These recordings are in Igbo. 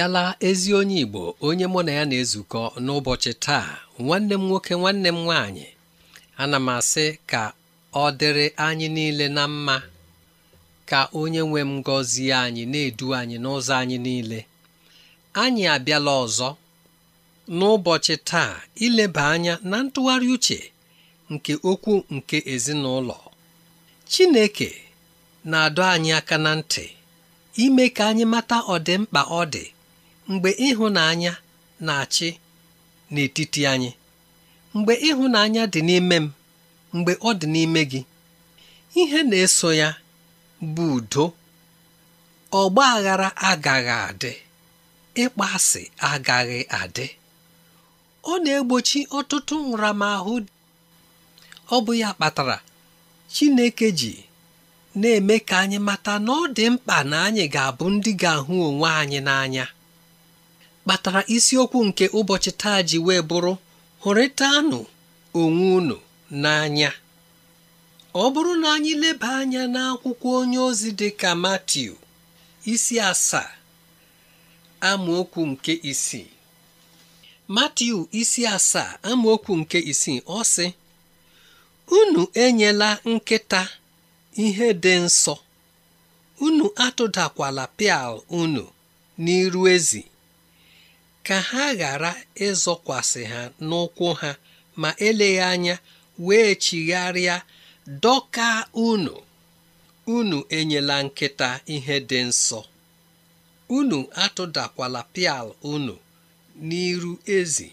abịala ezi onye Igbo onye mụ na ya na-ezukọ n'ụbọchị taa nwanne m nwoke nwanne m nwaanyị ana m asị ka ọ dịrị anyị niile na mma ka onye nwe m gọzie anyị na-edu anyị n'ụzọ anyị niile anyị abịala ọzọ n'ụbọchị taa ileba anya na ntụgharị uche nke okwu nke ezinụlọ Chineke na-adọ anyị aka na ntị ime ka anyị mata ọdịmkpa ọ dị mgbe ịhụnanya na-achị n'etiti anyị mgbe ịhụnanya dị n'ime m mgbe ọ dị n'ime gị ihe na-eso ya bụ udo ọgba aghara agaghị adị ịkpa asị agaghị adị ọ na-egbochi ọtụtụ nramahụ ọ bụ ya kpatara Chineke ji na-eme ka anyị mata na ọ dị mkpa na anyị ga-abụ ndị ga-ahụ onwe anyị n'anya kpatara isiokwu nke ụbọchị taa ji wee bụrụ hụrịtanụ onwe unu n'anya ọ bụrụ na anyị leba anya n'akwụkwọ onye ozi dị ka Matiu isi asaa amaokwu nke isii Matiu isi asaa amaokwu nke isii ọ sị unu enyela nkịta ihe dị nsọ unu atụdakwala pịal unu n'iru ezi ka ha ghara ịzọkwasị ha n'ụkwụ ha ma eleghị anya wee chigharịa dọka unu unu enyela nkịta ihe dị nsọ unu atụdakwala pial unu n'iru ezi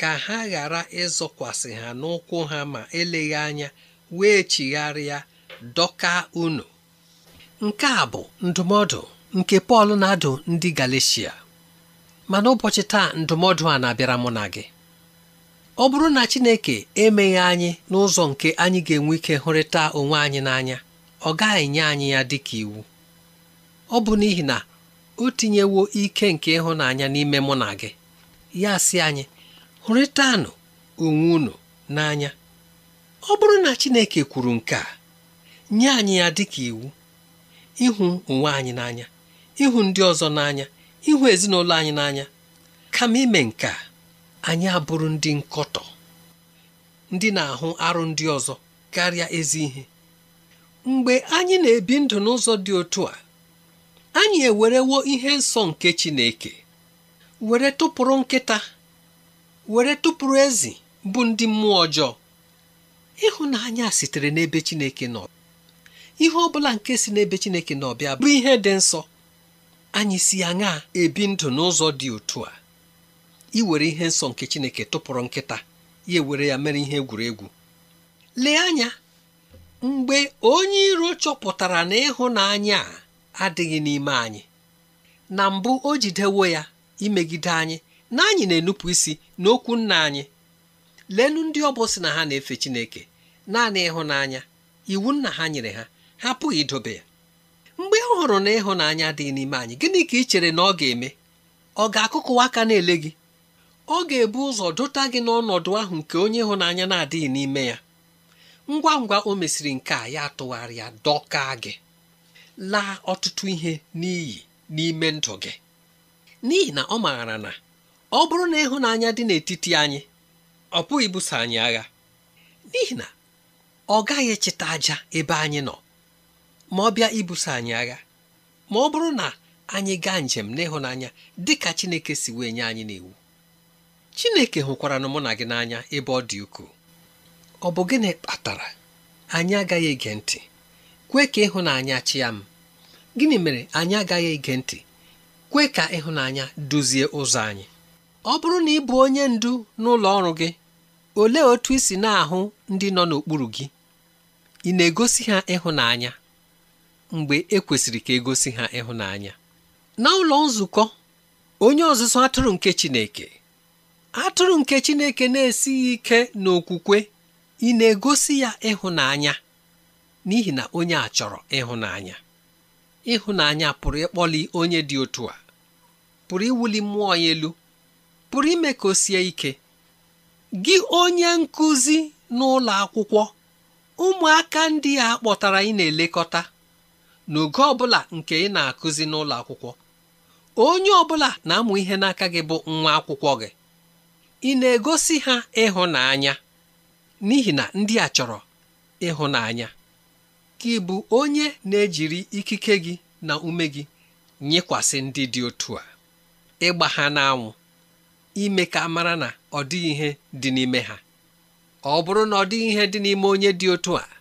ka ha ghara ịzọkwasị ha n'ụkwụ ha ma eleghị anya wee chigharịa dọka unu nke a bụ ndụmọdụ nke Pọl na-adụ ndị Galeshia ma n'ụbọchị taa ndụmọdụ a na-abịara mụ na gị ọ bụrụ na Chineke emeghị anyị n'ụzọ nke anyị ga-enwe ike hụrịta onwe anyị n'anya ọ gaghị nye anyị ya dị ka iwu ọ bụ n'ihi na o tinyewo ike nke ịhụnanya n'ime mụ na gị ya si anyị hụrịtanụ onwe unu n'anya ọ bụrụ na Chineke kwuru nke a nye anyị ya dị ka iwu ịhụ onwe anyị n'anya ịhụ ndị ọzọ n'anya ịhụ ezinụlọ anyị n'anya kama ime nke anyị abụrụ ndị nkọtọ ndị na-ahụ arụ ndị ọzọ karịa ezi ihe mgbe anyị na-ebi ndụ n'ụzọ dị otu a anyị ewerewo ihe nsọ nke Chineke were tụpụrụ nkịta were tụpụrụ ezi bụ ndị mmụọ ọjọọ ịhụnanya sitere n'ebe Chineke nọ ihe ọ bụla nke si n'ebe Chineke n'ọbịa bụ ihe dị nsọ anyị si ya nha ebi ndụ n'ụzọ dị otu a iwere ihe nsọ nke Chineke tụpụrụ nkịta ya ewere ya mere ihe egwuregwu lee anya mgbe onye iro chọpụtara na ịhụnanya a adịghị n'ime anyị na mbụ o jidewo ya imegide anyị na anyị na-enupụ isi n'okwu nna anyị leenụ ndị ọ bụ na ha na-efe Chineke naanị ịhụnanya iwu nna ha nyere ha ha apụghị idobe ya hụrụ na ịhụnanya dị n'ime anyị gịnị ka ị chere na ọ ga-eme ọ ga-akụkụwa aka na-ele gị ọ ga-ebu ụzọ dụta gị n'ọnọdụ ahụ nke onye ịhụnanya na-adịghị n'ime ya ngwa ngwa o mesịrị nke a ya tụgharị ya dọka gị laa ọtụtụ ihe n'iyi n'ime ndụ gị n'ihi na ọ maara na ọ bụrụ na ịhụnanya dị n'etiti anyị ọ pụghị ibuso anyị agha n'ihi na ọ gaghị echeta aja ebe anyị nọ ma ọ bịa ibuso anyị agha ma ọ bụrụ na anyị gaa njem n'ịhụnanya dị ka Chineke si wee nye anyị n'iwu Chineke hụkwara na mụ na gị n'anya ebe ọ dị ukwuu ọ bụ gịnị kpatara anyị agaghị ege ntị kwe ka ịhụnanya chịa m gịnị mere anyị agaghị ege ntị kwe ka ịhụnanya duzie ụzọ anyị ọ bụrụ na ị bụ onye ndu n'ụlọ ọrụ gị olee otu i si na-ahụ ndị nọ n'okpuru gị ị na-egosi ha ịhụnanya mgbe ekwesịrị ka egosi ha ịhụnanya na ụlọ nzukọ onye ọzụzụ atụrụ nke Chineke atụrụ nke Chineke na-esighị ike n'okwukwe ị na-egosi ya ịhụnanya n'ihi na onye a chọrọ ịhụnanya ịhụnanya pụrụ ịkpọli onye dị otu a pụrụ iwuli mmụọ ya elu pụrụ ime ka o sie ike gị onye nkụzi n'ụlọ akwụkwọ ụmụaka ndị a kpọtara ị na-elekọta n'oge ọbụla nke ị na-akụzi n'ụlọ akwụkwọ onye ọbụla na-amụ ihe n'aka gị bụ nwa akwụkwọ gị ị na-egosi ha ịhụnanya n'ihi na ndị a chọrọ ịhụnanya ka ịbụ onye na-ejiri ikike gị na ume gị nyekwasị ndị dị otu a ịgba ha n'anwụ ime ka mara na ọ dịghị ihe dị n'ime ha ọ bụrụ na ọ dịghị ihe dị n'ime onye dị otu a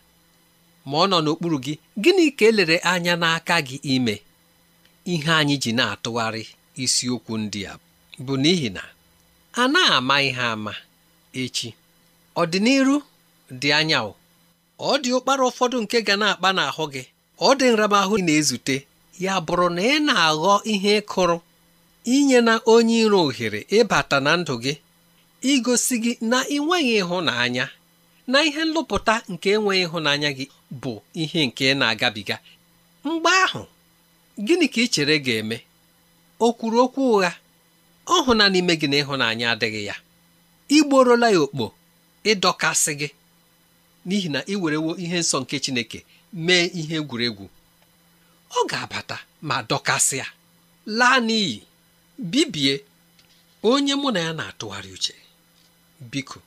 ma ọ nọ n'okpuru gị gịnị ka elere anya n'aka gị ime ihe anyị ji na-atụgharị isiokwu ndị a bụ n'ihi na a na-ama ihe ama echi ọdịnihu dị anya ọ dị ụkpara ụfọdụ nke ga na-akpa n'ahụ gị ọ dị nramahụ na-ezute ya bụrụ na ị na-aghọ ihe kụrụ inye na onye iro ohere ịbata na ndụ gị igosi gị na ị nweghị ịhụnanya na ihe nlụpụta nke enweghị ịhụnanya gị bụ ihe nke na-agabiga mgbe ahụ gịnị ka ị chere ga-eme o kwuru okwu ụgha ọ hụna n'ime gị na ịhụnanya adịghị ya igborola ya okpo ịdọkasị gị n'ihi na ị werewo ihe nsọ nke Chineke mee ihe egwuregwu ọ ga-abata ma dọkasịa laa n'iyi bibie onye mụ na ya na-atụgharị uche biko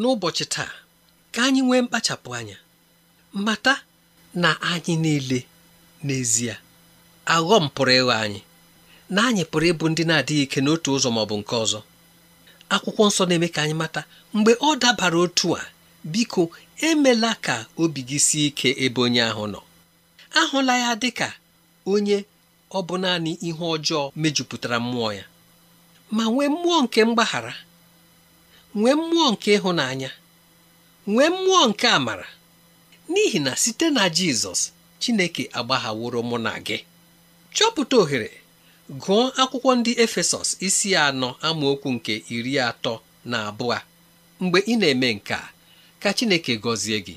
n'ụbọchị taa ka anyị nwee mkpachapụ anya mata na anyị niile n'ezie aghọm pụrụ ịghọ anyị na anyị pụrụ ịbụ ndị na-adịghị ike n'otu ụzọ ma bụ nke ọzọ akwụkwọ nsọ na-eme ka anyị mata mgbe ọ dabara otu a biko emela ka obi gị sie ike ebe onye ahụ nọ ahụla ya dị ka onye ọ bụ naanị ihe ọjọọ mejupụtara mmụọ ya ma nwee mmụọ nke mgbaghara nwee mmụọ nke ịhụnanya nwee mmụọ nke amara n'ihi na site na jizọs chineke agbaghaworo mụ na gị chọpụta ohere gụọ akwụkwọ ndị efesọs isi anọ amaokwu nke iri atọ na abụọ mgbe ị na-eme nke a ka chineke gọzie gị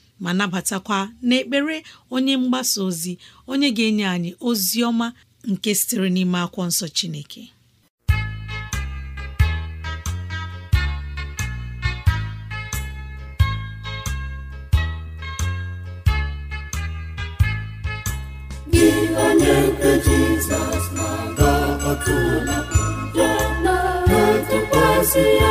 ma nabatakwa n'ekpere onye mgbasa ozi onye ga-enye anyị ozi ọma nke sitere n'ime akwụkwọ nsọ Chineke onye nke Jizọs na-aga ọtụla na-atụkwasị ya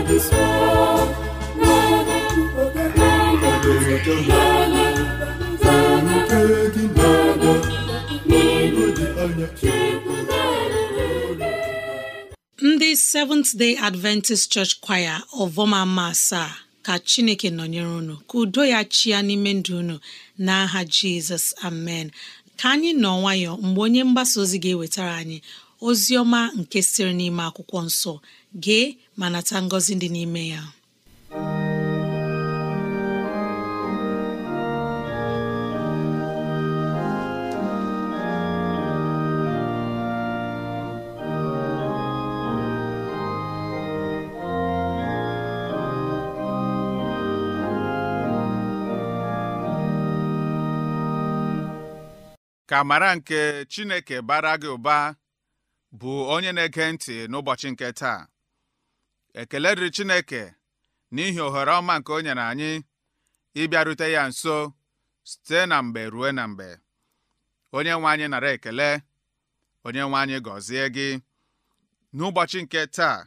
ndị Seventh Day Adventist Church Choir ọvọmama asaa ka Chineke nọnyere unu ka udo ya chia n'ime ndụ unu n'aha Jizọs amen ka anyị nọ nwayọọ mgbe onye mgbasa ozi ga-ewetara anyị ozi ọma nke sịrị n'ime akwụkwọ nsọ gee ma nata ngọzi dị n'ime ya ka amara nke Chineke bara gị ụba bụ onye na-ege ntị n'ụbọchị nke taa ekele dịrị Chineke n'ihi ohere ọma nke o nyere anyị ịbịarute ya nso site na mgbe ruo na mgbe onye nwe anyị nara ekele onye nwe anyị gọzie gị n'ụbọchị nke taa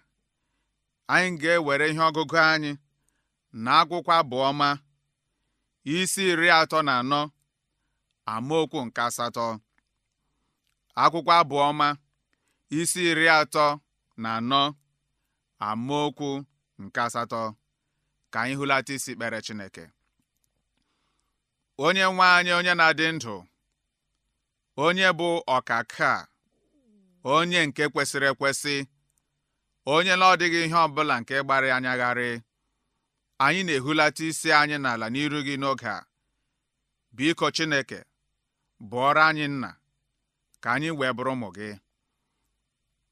anyị ga-ewere ihe ọgụgụ anyị na akwụkwọ abụọma isi iri atọ na anọ amaokwu nke asatọ akwụkwọ abụọma isi iri atọ na anọ okwu nke asatọ ka anyị hụlata isi kpere Chineke onye nwe anyị onye na-adị ndụ onye bụ ọkaka onye nke kwesịrị ekwesị onye na ọdịghị ihe ọbụla nke gbara anyagharị anyị na-ehulata isi anyị n'ala n'iru gị n'oge a biko Chineke bụọrọ anyị nna ka anyị wee bụrụ ụmụ gị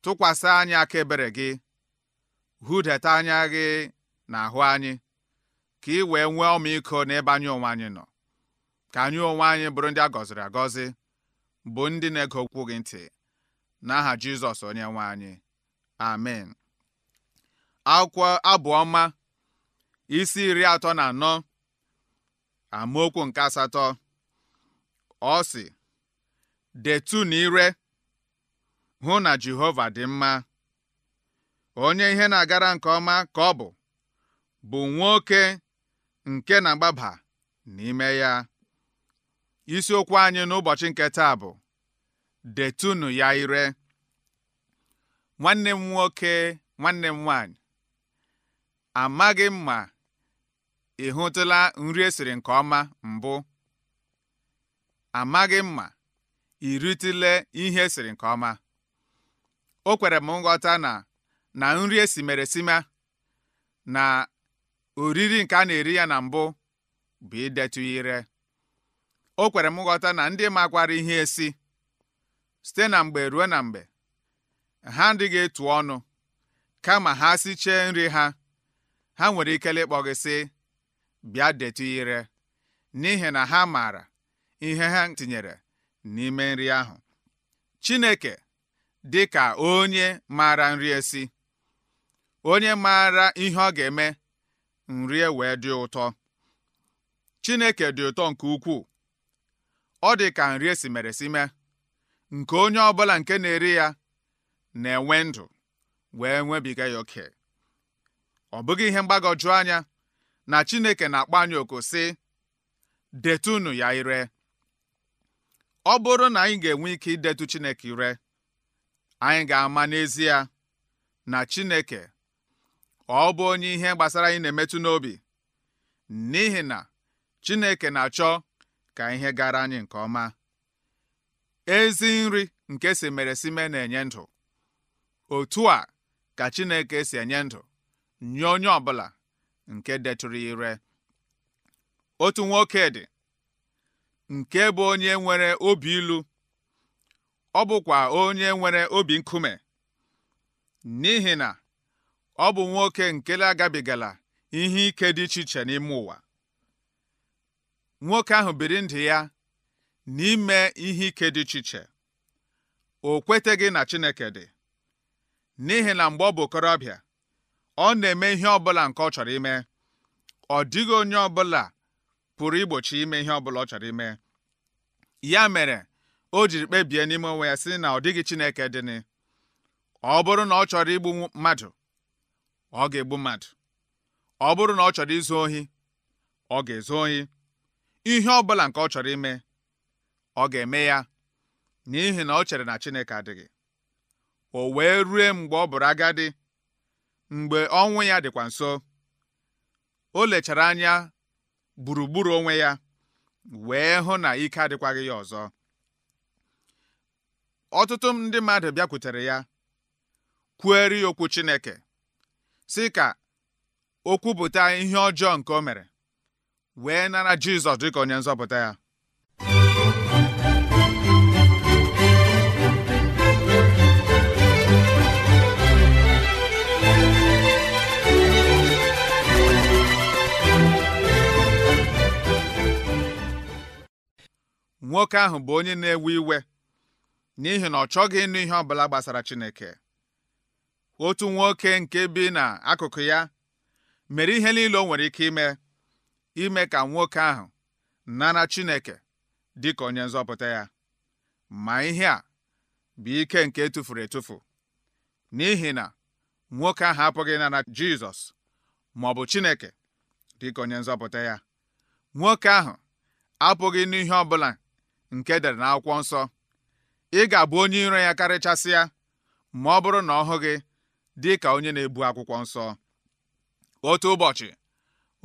tụkwasị anyị aka ebere gị hudata anya gị n'ahụ anyị ka ị wee nwee ọmịiko n'ebe anyị onwe anyị nọ ka anyị onwe anyị bụrụ ndị a gọziri agọzi bụ ndị na-ege okwu gị ntị n'aha Jizọs onye nwe anyị amen akwụkwọ abụọma isi iri atọ na anọ amaokwu nke asatọ ọ sị na ire hụ na Jehova dị mma onye ihe na-agara nke ọma ka ọ bụ bụ nwoke nke na-agbaba n'ime ya isiokwu anyị n'ụbọchị nke taa bụ detunu ya ire nwanne m nwoke nwanne m nwanyị amaghị m ma ị hụtụla nri esiri nke ọma mbụ amaghị m ma ị ritụle ihe esiri nke ọma o kwere m nghọta na na nri esimeresima na oriri nke a na-eri ya na mbụ bụ idetụ ire o kwere m nghọta na ndị makwara ihe esi site na mgbe ruo na mgbe ha adịghị etu ọnụ kama ha sichee nri ha ha nwere ikele ịkpọ gị bịa detu ire n'ihi na ha maara ihe ha tinyere n'ime nri ahụ Chineke dị ka onye maara nri esi onye maara ihe ọ ga-eme nri e wee dị ụtọ Chineke dị ụtọ nke ukwuu ọ dị ka nri esi mere si mee nke onye ọbụla nke na-eri ya na-enwe ndụ wee nwebiga ya oke ọ bụghị ihe mgbagwoju anya na Chineke na-akpọ anyị oku sị detunu ya ire ọ bụrụ na anyị ga-enwe ike idetu Chineke ire anyị ga-ama n'ezie na Chineke ọ bụ onye ihe gbasara anyị na-emetụ n'obi n'ihi na Chineke na-achọ ka ihe gara anyị nke ọma ezi nri nke si mere sime na-enye ndụ otu a ka Chineke si enye ndụ nye onye bụla nke detụrụ ire otu nwoke dị nke bụ onye nwere obi ilu ọ bụkwa onye nwere obi nkume n'ihi na ọ bụ nwoke nkele agabigala ihe ike dị iche iche n'ime ụwa nwoke ahụ biri ndụ ya n'ime ihe ike dị iche iche o kweteghị na Chineke dị n'ihi na mgbe ọ bụ okorobịa ọ na-eme ihe ọbụla nke ọ chọrọ ime ọ dịghị onye ọbụla pụrụ igbochi ime ihe ọbụla ọ chọrọ ime ya mere o jiri kpebie n'ime onwe ya sị na ọ dịghị Chineke dịnị ọ bụrụ na ọ chọrọ igbu mmadụ ọ ga-egbu mmadụ ọ bụrụ na ọ chọrọ izu ohi ọ ga-ezu ohi ihe ọ bụla nke ọ chọrọ ime ọ ga-eme ya n'ihi na ọ chere na Chineke adịghị o wee rue mgbe ọ bụrụ agadi mgbe ọnwụ ya dịkwa nso o lechara anya gburugburu onwe ya wee hụ na ike adịkwaghị ya ọzọ ọtụtụ ndị mmadụ bịakwutere ya kwueri okwu Chineke sị ka o kwupụta ihe ọjọọ nke o mere wee nara Jizọs dị ka onye nzọpụta ya nwoke ahụ bụ onye na-ewe iwe n'ihi na ọ chọghị ịnụ ihe ọbụla gbasara Chineke otu nwoke nke bi n'akụkụ ya mere ihe niile o nwere ike ime ime ka nwoke ahụ nara Chineke dị ka onye nzọpụta ya ma ihe a bụ ike nke tụfuru etufu n'ihi na nwoke ahụ apụghị nara Jizọs ma ọ bụ Chineke dịka onye nzọpụta ya nwoke ahụ apụghị n'ihe ọbụla nke dere n'akwụkwọ nsọ ị ga-abụ onye iro ya karịchasị ya ma ọ bụrụ na ọ hụ gị dị ka onye na-ebu akwụkwọ nsọ otu ụbọchị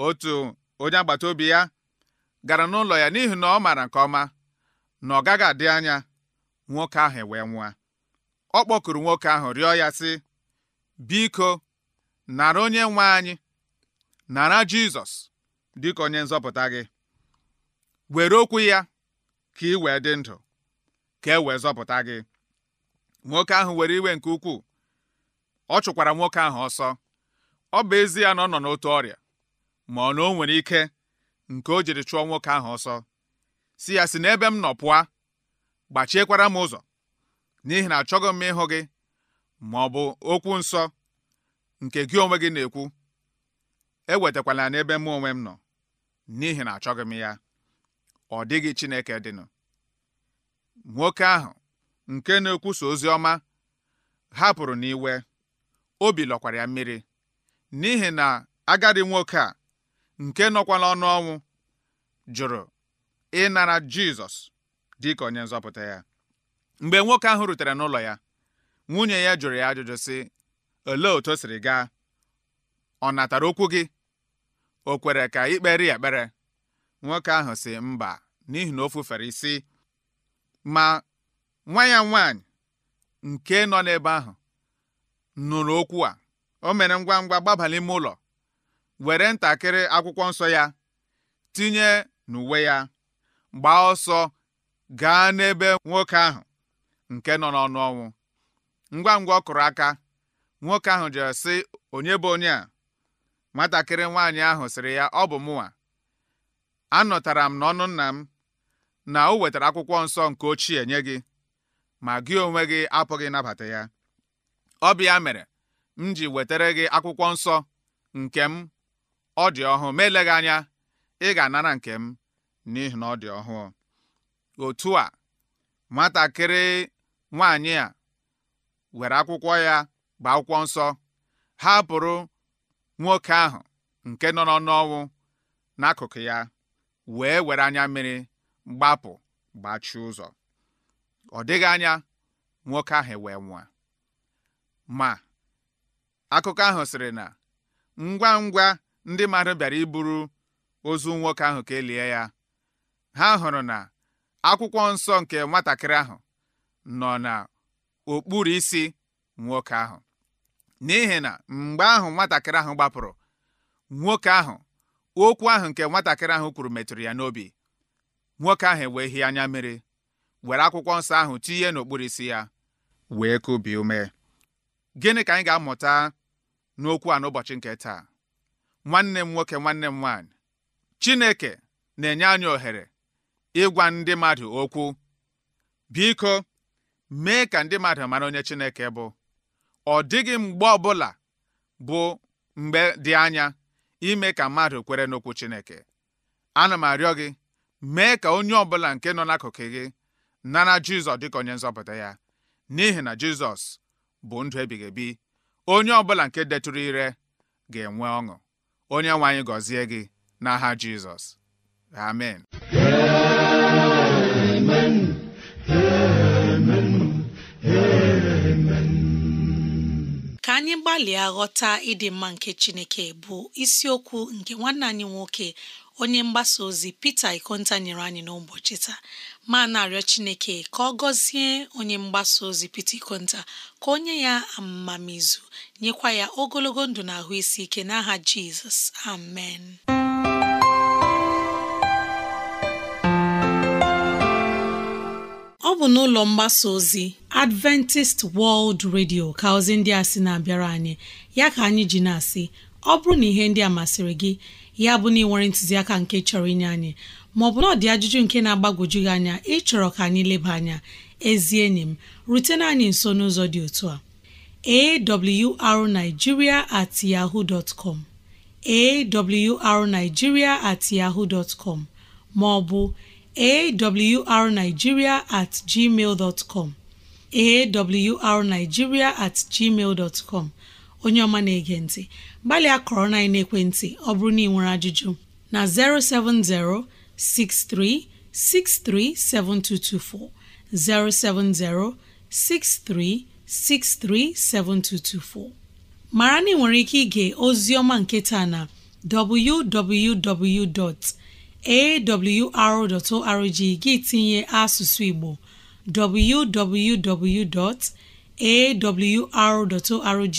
otu onye agbata obi ya gara n'ụlọ ya n'ihi na ọ maara nke ọma na ọ gaghị adị anya nwoke ahụ wee nwa. ọ kpọkuru nwoke ahụ rịọ ya sị biko nara onye nwe anyị nara Jizọs dịka onye nzọpụta gị were okwu ya ka ị wee dị ndụ ka e wee zọpụta gị nwoke ahụ were iwe nke ukwuu ọ chụkwara nwoke ahụ ọsọ ọ bụ ezie na ọ nọ n'otu ọrịa ma ọ na o nwere ike nke o jiri chụọ nwoke ahụ ọsọ si ya si n'ebe m nọ pụa gbachiekwara m ụzọ n'ihi na achọghị m ịhụ gị ma ọ bụ okwu nsọ nke gị onwe gị na-ekwu ewetakwala n'ebe mụ onwe m nọ n'ihi na achọghị m ya ọ dịghị Chineke dịnụ nwoke ahụ nke na-ekwusa ozi ọma hapụrụ n'iwe obi lọkwara ya mmiri n'ihi na agadi nwoke a nke nọkwa ọnụ ọnwụ jụrụ ịnara Jizọs dịka onye nzọpụta ya mgbe nwoke ahụ rutere n'ụlọ ya nwunye ya jụrụ ya ajụjụ sị olee otu o siri gaa ọ natara okwu gị o kwere ka ikpere ya ekpere nwoke ahụ sị mba n'ihi na o fufere isi ma nwa ya nwanyị nke nọ n'ebe ahụ nụrụ okwu a o mere ngwa ngwa gbaba ime ụlọ were ntakịrị akwụkwọ nsọ ya tinye n'uwe ya gbaa ọsọ gaa n'ebe nwoke ahụ nke nọ n'ọnụ ọnwụ ngwa ngwa ọ kụrụ aka nwoke ahụ jere sị onye bụ onye a nwatakịrị nwaanyị ahụ sịrị ya ọ bụ mụnwa anọtara m n'ọnụ nna m na o wetara akwụkwọ nsọ nke ochie nye gị ma gị onwe gị apụghị nabata ya ọ bịa mere m ji wetara gị akwụkwọ nsọ nke m ọ dị ọhụụ ma eleghị anya ị ga-anara nke m n'ihi na ọ dị ọhụụ otu a nwatakịrị nwaanyị a were akwụkwọ ya gbaa akwụkwọ nsọ hapụrụ nwoke ahụ nke nọ n'ọnụ ọnwụ n'akụkụ ya wee were anya mmiri gbapụ gbachie ụzọ ọ dịghị anya nwoke ahụ wee nwa ma akụkọ ahụ sịrị na ngwa ngwa ndị mmadụ bịara iburu ozu nwoke ahụ ka elie ya ha hụrụ na akwụkwọ nsọ nke nwatakịrị ahụ nọ n'okpuru isi nwoke ahụ n'ihi na mgbe ahụ nwatakịrị ahụ gbapụrụ nwoke ahụ okwu ahụ nke nwatakịrị ahụ kwuru metụrụ ya n'obi nwoke ahụ wee hie anya mmiri were akwụkwọ nsọ ahụ tinye n'okpuru isi ya wee kubi ume gịnị ka anyị ga-amụta n'okwu a n'ụbọchị nke taa nwanne m nwoke nwanne m nwaanyị Chineke na-enye anyị ohere ịgwa ndị mmadụ okwu biko mee ka ndị mmadụ mara onye Chineke bụ ọ dịghị mgbe ọbụla bụ mgbe dị anya ime ka mmadụ kwere n'okwu Chineke ana m arịọ gị mee ka onye ọbụla nke nọ n'akụkụ gị nara Jizọs dịka onye nzọpụta ya n'ihi na Jizọs bụ ndụ ebighị ebi onye ọbụla nke detụrụ ire ga-enwe ọṅụ onye nwe anyị gọzie gị n'aha Jizọs amen amen amen amen ka anyị gbalịa ghọta ịdị mma nke Chineke bụ isiokwu nke nwanne anyị nwoke onye mgbasa ozi pita Ikonta nyere anyị n'ụbọchị taa ma na-arịọ Chineke ka ọ gọzie onye mgbasa ozi pita Ikonta ka onye ya amamizu nyekwa ya ogologo ndụ na ahụ isi ike n'aha Jizọs amen ọ bụ n'ụlọ mgbasa ozi Adventist World Radio ka ozi ndị a sị na-abịara anyị ya ka anyị ji na-asị ọ bụrụ na ihe ndị a masịrị gị ya bụ na ị ntụziaka nke chọrọ inye anyị maọbụ na ọ dị ajụjụ nke na-agbagwoju gị anya ịchọrọ ka anyị leba anya ezi enyi m rutena anyị nso n'ụzọ dị otu a awrnigeria at yahoo dot com awrnigeria maọbụ at onye ọma na-ege ntị gbalịa kọrọ na ekwentị ọ bụrụ na ị nwere ajụjụ na 070 6363 7224 070 6363 7224 mara na ike ige ozi ọma nke taa na www.awr.org gị tinye asụsụ Igbo www.awr.org